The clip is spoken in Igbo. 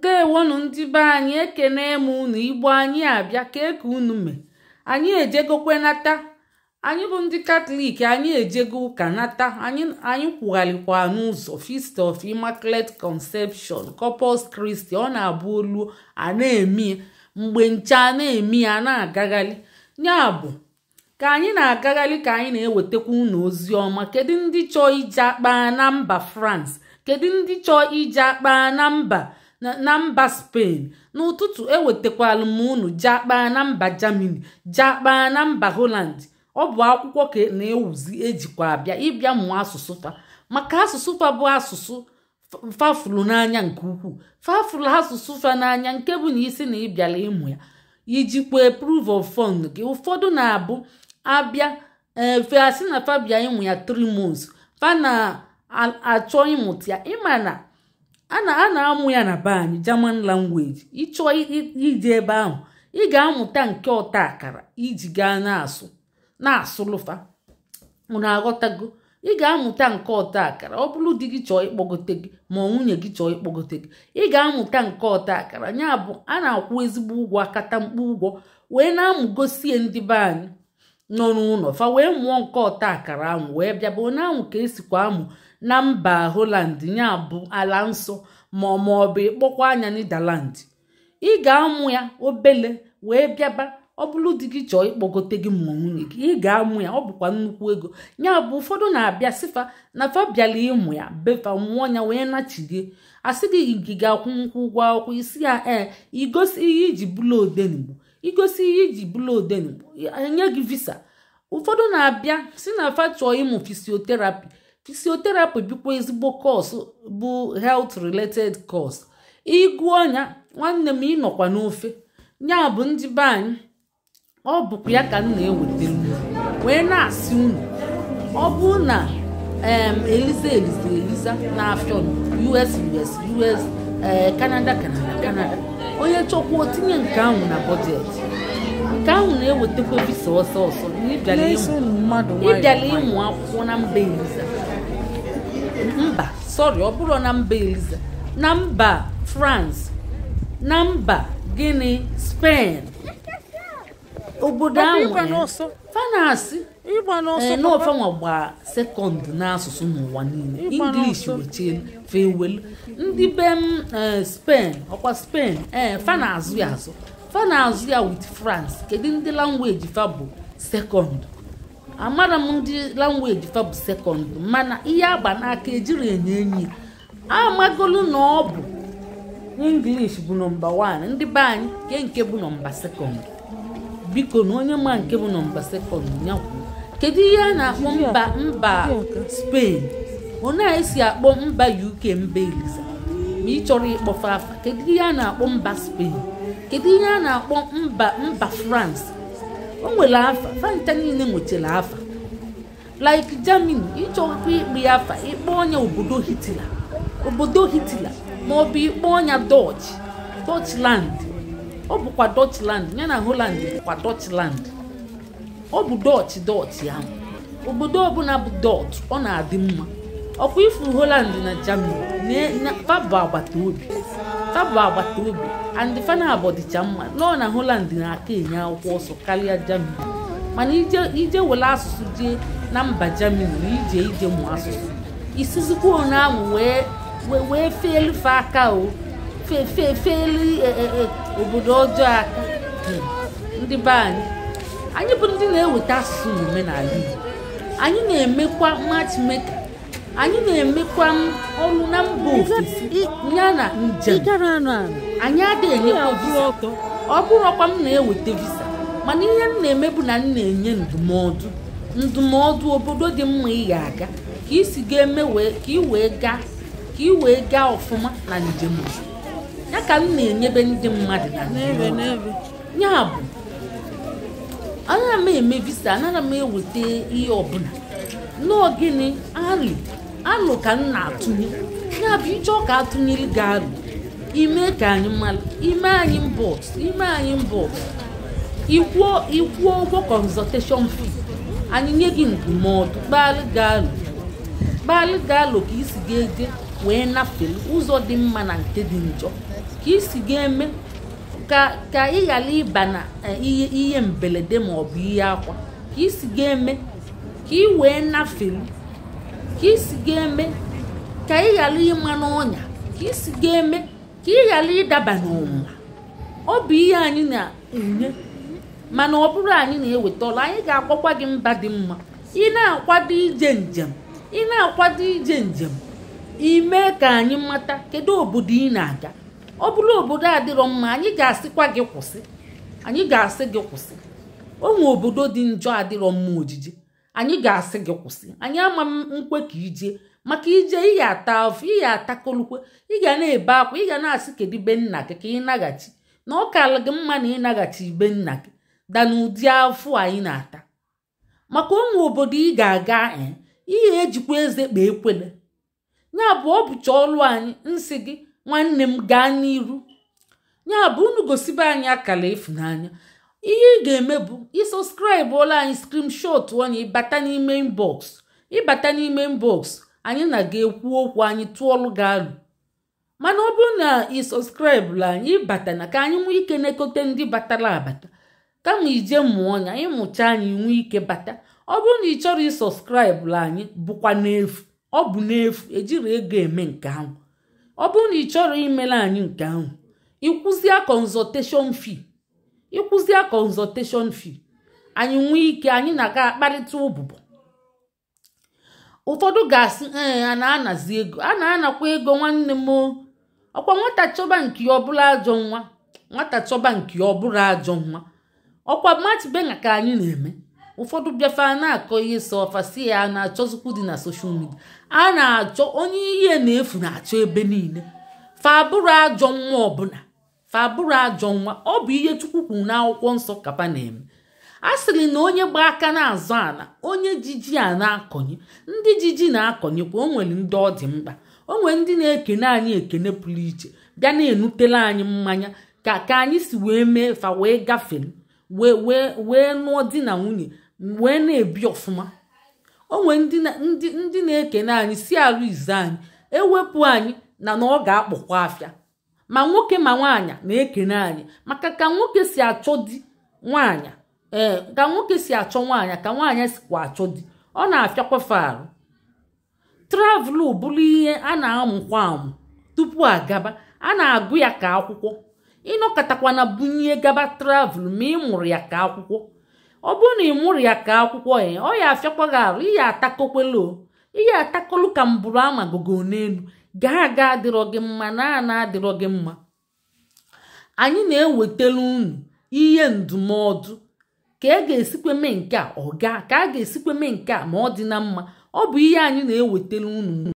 ndewonu ndị be anyị ekene m unu igbo anyị abịa ka eke unu mee anyị ejegokwe nata anyị bụ ndị katọlik anyị ejego ụka nata anyị kwugharịkwa n'ụzọ fist of immaculate conception corpus kristi ọ na-abụ olu a na-eme mgbe nche a na-eme ya na-agagharị ya bụ ka anyị na-agagharị ka anyị na-ewetakwa unu ozi ọma kedu ndị chọọ ije akpa na mba france kedu ndị chọọ ije akpa na mba na mba Spain n'ụtụtụ ewetakwala m unu jakpaa na mba Germany jakpaa na mba Holland ọ bụ akwụkwọ ka na-ewuzi ejikwa abịa ịbịa mụọ asụsụ fa maka asụsụ fa bụ asụsụ fafulu n'anya nke ukwuu fafulu asụsụ fa n'anya nke bụ na isi na ịbịala ịmụ ya ijikwa proof of fund gị ụfọdụ na-abụ abịa efe na fabia ịmụ ya 3 months fa na-achọ ịmụta ya ịma na. a na-amụ ya na be anyị German language ịchọọ ije ebe ahụ ị ga-amụta nke ọta akara iji gaa na-asụ na-asụlụfa na aghọtago ị ga-amụta nke ọta akara ọ bụrụ di gị chọọ ịkpọgote gị ma nwunye gị chọọ ịkpọgote gị ị ga-amụta nke ọta akara ya bụ a na-akwụ ezigbo ụgwọ akata mkpu ụgwọ wee na-amụgosie ndị be anyị nọ n'ụlọ fa wee mụọ nke ọta akara ahụ wee bịaba onye ahụ ka esikwa amụ na mba holand ya bụ ala nsọ ma ma ọ bụ ịkpọkwa anya Netherland ị ga-amụ ya obele wee bịaba ọ bụrụ di gị chọọ ịkpọgote gị ma nwunye gị ị ga-amụ ya ọ bụkwa nnukwu ego ya bụ ụfọdụ na-abịa sifa na fa ịmụ ya befa mụọ ya wee nachi gị asị gị gị ga-akwụ nkwụ ụgwọ akwụkwọ isi ya ee igosi ihe iji bụlụ odenigbo igosi ihe iji bụlụ odenigbo e, enye gị visa ụfọdụ na-abịa si na fa chọọ ịmụ fisioterapi fisioterapi bụkwa ezigbo kọs bụ health related cos ịgụ ọnya nwanne m ịnọkwa n'ofe ya bụ ndị be ọ bụkwa ya ka m na-ewetara wee na-asị unu ọ bụ na eliza eliza eliza na-afịọ us us us eh, canada canada canada onye chọkwa otinye nke ahụ na bọjetị nke ahụ na-ewetakwa visa ọsọ ọsọ ịbịala ịmụ akwụkwọ na mba eliza mba sọrị ọ bụrụ na mba eliza na mba france na mba gịnị spen obodo ahụ fanasị n'ofenwa eh, gba sekọnd n'asụsụ n'ụwa niile english wechie fewelu ndị be m eh, spen ọkwa spen ee eh, fana ya azụ fa na-azụ ya with France kedu ndị langweji fa bụ sekọnd amara m ndị langweji fa bụ sekọnd mana ihe agba n'aka ejiri enye enyi amagolu na ọ bụ English bụ nọmba 1 ndị be anyị ke nke bụ nọmba sekọnd biko na onye ma nke bụ nọmba sekọnd nyakwu kedu ihe a na-akpọ mba mba Spain onye na-esi akpọ mba UK mba eliza ma ị chọrọ ịkpọfe afa kedu ihe a na-akpọ mba Spain kedu ihe a na-akpọ mba mba France o nwere afa fanta niile nwechara afa like Germany ịchọkwa ikpe ya afa ikpe ọnya obodo Hitler obodo Hitler ma ọ bụ ikpe ọnya Dutch Dutchland ọ bụkwa Dutchland ya na holand bụkwa Dutchland ọ bụ Dutch Dutch ya obodo ọbụla bụ Dutch ọ na-adị mma ọkwa ifu Holland na Germany na pabụ agbata obi ha bụ agbata obi andị fana abọdịcha mma nọọ na holand na-aka enye akwụkwọ ọsọ karịa Germany mana ije were asụsụ jee na mba Germany na ije ije mụ asụsụ isizikwa onye ahụ wee feelife aka o feefeefeeli e, e, e, obodo ọjọọ aka hmm. ndị be anyị anyị bụ ndị na-eweta asụsụ na omenala Igbo anyị na-emekwa matchmaker anyị na-emekwa ọnụ na mba ofesi ya na njem anyị adịghị enyekwa ọ bụrụ ọkwa m na-eweta visa mana ihe m na-eme bụ na m na-enye ndụmọdụ ndụmọdụ obodo dị mma ị ga-aga ka isi ga-eme ka ị wee gaa ka ị wee gaa ọfụma na njem ya ka m na-enyebe ndị mmadụ na ya bụ anaghị m eme visa anaghị m eweta ihe ọbụla n'ogini ari alụ ka m na-atụnye ya bụ ije ọka atụnyere ga-alụ ime ka anyị mara ime anyị mbọs ime anyị mbọs ikwuo ikwuo ụgwọ kọnzọteshọn fee anyị nye gị ndụmọdụ gbalị ga-alụ gbalị ga-alụ ka isi ga-eje wee nafee ụzọ dị mma na nke dị njọ ka isi ga-eme ka ka ị ghara ịba na eh, ihe ihe mberede ma ọ bụ ihe akwa ka isi ga-eme ka ị wee nafelu ka isi ga-eme ka ị ghara ịma n'ọnya ka isi ga-eme ka ị ghara ịdaba n'ọnwụnwa ọ bụ ihe anyị na-enye mana ọ bụrụ anyị na-eweta anyị ga-akwakwa gị mba dị mma ị na-akwado ije njem ị na-akwado ije njem ime ka anyị mata kedu obodo ị na-aga ọ bụrụ obodo adịrọ mma anyị ga-asịkwa gị kwụsị anyị ga-asị gị kwụsị onwe obodo dị njọ adịrọ mma ojiji anyị ga-asị gị kwụsị anyị ama nkwe ka ije maka ije ị ata afọ ị ata kolukwe ị ga na-ebe akwa ị ga na-asị kedu be nna gị ka ị naghachi na ọ gị mma na ịnaghachi ibe nna gị da ụdị afụ anyị na-ata maka ụmụ obodo ị ga-aga ihe eh, ejikwa eze kpa ekwele ya bụ ọ bụcha anyị nsị gị nwanne m gaa n'iru ya bụ unu gosibe anyị akala ịfụnanya ihe ị ga-eme bụ ịsọskraịbụla anyị skrimshot anyị ịbata n'ime inbox ịbata n'ime inbox anyị na ga-ekwu okwu anyị tụọlụ gị alụ mana ọ bụrụ na ị sọskraịbụla anyị ịbata na ka anyị nwee ike na ndị batara abata kama ije mụọ anya anyị mụcha anyị nwee ike bata ọ bụrụ na ị chọrọ ịsọskraịbụla anyị bụkwa n'efu ọ bụ n'efu ejiri ego eme nke ahụ ọ bụrụ na ị chọrọ imela anyị nke ahụ ịkwụzie kọnzọteshọn fee ịkwụzie consultation fee anyị nwee ike anyị na-aga akparịta ụbụbọ ụfọdụ ga-asị ee a na-anazi ego a na-anakwa ego nwanne m ọkwa nwata chọba nke ọbụla ajọ nwa nwata chọba nke ọbụla ajọ nwa ọkwa machibena ka anyị na-eme ụfọdụ bịafe na-akọ ihe sọ ya na-achọzikwu dị na soshal midia a na-achọ onye ihe na-efu na-achọ ebe niile fa abụrụ ajọ nwa ọbụla fa bụrụ ajọ nwa ọ bụ ihe Chukwu kwuru n'akwụkwọ nsọ Kapanem a sịrị na onye gba aka na-azọ ala onye jiji a na-akọnye ndị jiji na-akọnyekwa o nwere ndị ọ dị mkpa o nwere ndị na-ekene anyị ekene pụrụ iche bịa na-enutela anyị mmanya ka ka anyị si wee mee fa wee gafere wee wee wee nụọ di na nwunye wee na-ebi ọfụma o nwere ndị na-ekene anyị si arụ izu anyị ewepụ anyị na na ọ ga-akpọkwa afịa ma nwoke ma nwaanyị na-ekene anyị maka ka nwoke si achọ di nwaanyị ee eh, ka nwoke si achọ ka nwaanyị sikwa achọ di ọ na afịakwa arụ travụl bụrụ ihe a na-amụkwa amụ tupu gaba a na-agụ ya ka akwụkwọ ịnọkọtakwana bunye gaba travelu ma ị mụrụ ya ka akwụkwọ ọ bụrụ na ị mụrụ ya ka akwụkwọ ya eh, ọ ya afịakwaghị arụ ihe atakokwelo ihe atakolu ka mbụrụ amagogo n'elu ga aga adịrọ gị mma na ana adịrọ gị mma anyị na-ewetara unu ihe ndụmọdụ ka a e ga-esikwa mee nke a ọ ka a ga-esikwa mee nke a ma ọ dị na mma ọ bụ ihe anyị na-ewetara unu